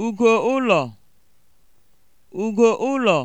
ugo ụlọ ugo ụlọ